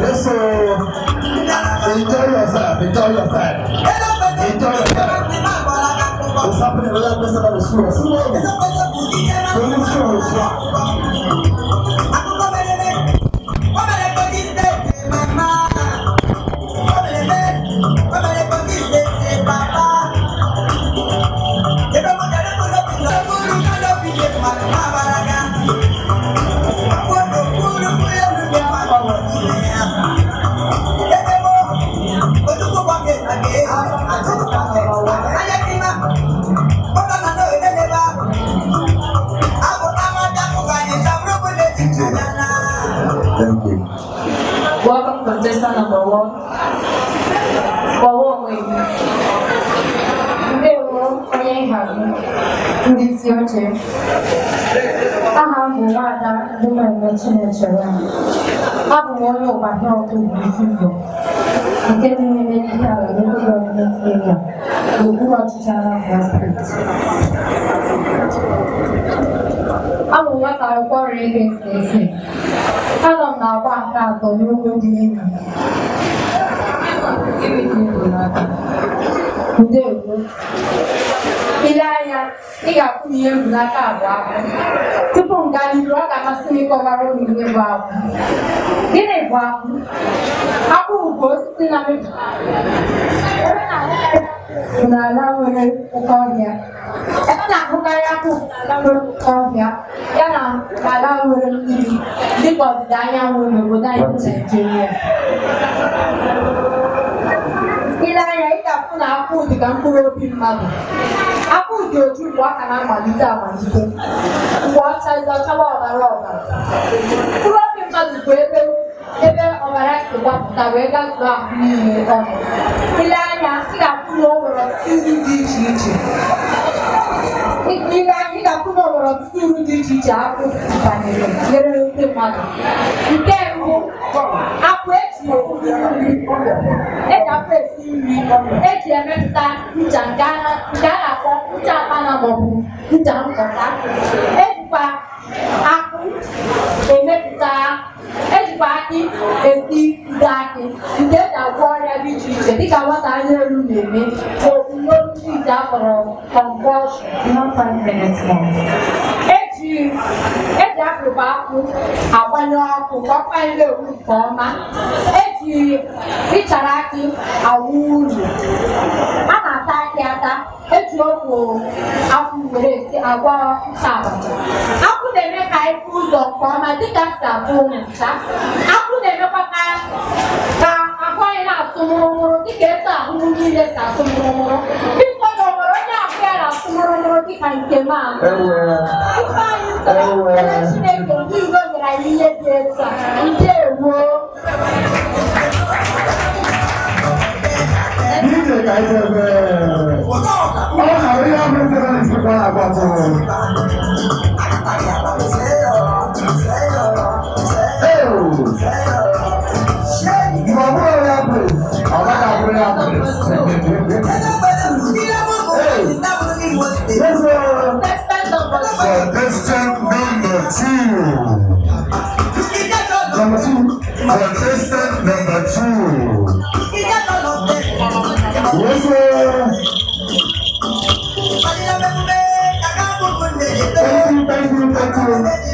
Yes, sir. Enjoy yourself. Enjoy yourself. Enjoy yourself. What's happening? We're going to go to the school. School. School. School. Thank you. Welcome contestant number one. Kpọwọ́ onwe gị. Ndewo onye nhazi ndị isi oche. Aha m bụ Nwada Ndụmọeme Chinechere. Abụ m onye ụgbata ọkụ Igbo nke dị n'ime ihe ala local government area n'okpuru ọchịchị Anambra steeti. Abụ nwata akwụkwọ Rivers ese. Anọ m na-agba nke atọ n'ugwu dị elu. Ndewo. Ile anya, ị ga-akwụ m ihe mbulata abụọ tupu m gaa n'iru ọ ga-amasị m ịkọwara ụmụ ihe bụ akwụ. Gịnị bụ akwụ? Akwụ bụ osisi na-amịpụta. kilala na yung ikaw niya. na, kung kaya na kilala mo yung ikaw niya, yan ang anyanwụ mo ng ibig. na mo dahil na akwụ di ka mkpụrụ obi mmadụ. Akụ dị otu mgbe aka na-amalite amalite. Mgbe ọcha ịza ọbara ọbara. Mkpụrụ obi mmadụ bụ ebe wega na ile anya ị ga-akwụ na onwere ọtụtụ uru dị iche iche ile anya ị ga-akwụ na onwere ọtụtụ uru dị iche iche akpụ banyere nyere ndị mmadụ nke mbụ akpụ eji eji akpụ esi nri eji emepụta ncha nke a na-akpọ ejikwa akpụ emepụta ejikwa akị esi ndị akị nke eji agwọ ọrịa dị iche iche dịka nwata anya elu na-eme n'omume ndị ite akpọrọ convulsion eji e e akpụkpọ akpụ agbanye ọkụ ka ọ kpanye ewu nke ọma eji ịchara akị awụ uru ata ndị ata eji ọgwụ akwụ were esi agwa ncha abacha akwụ na-eme ka anyị fụ ụzọ nke ọma dịka si abụ ncha akwụ na-emekwa ka ahụ anyị na-atụ mụrụmụrụ dịka etu ahụ niile si atụ mụrụmụrụ biko na ọ onye ahụ ya na-atụ mụrụmụrụ dịka nke m a Chineke ndị Igbo nyere anyị ihe dị etu a ndewo Thank you. parapata rẹ̀. Contestant number two. Number two. Contestant number two. Yes, sir. Thank you.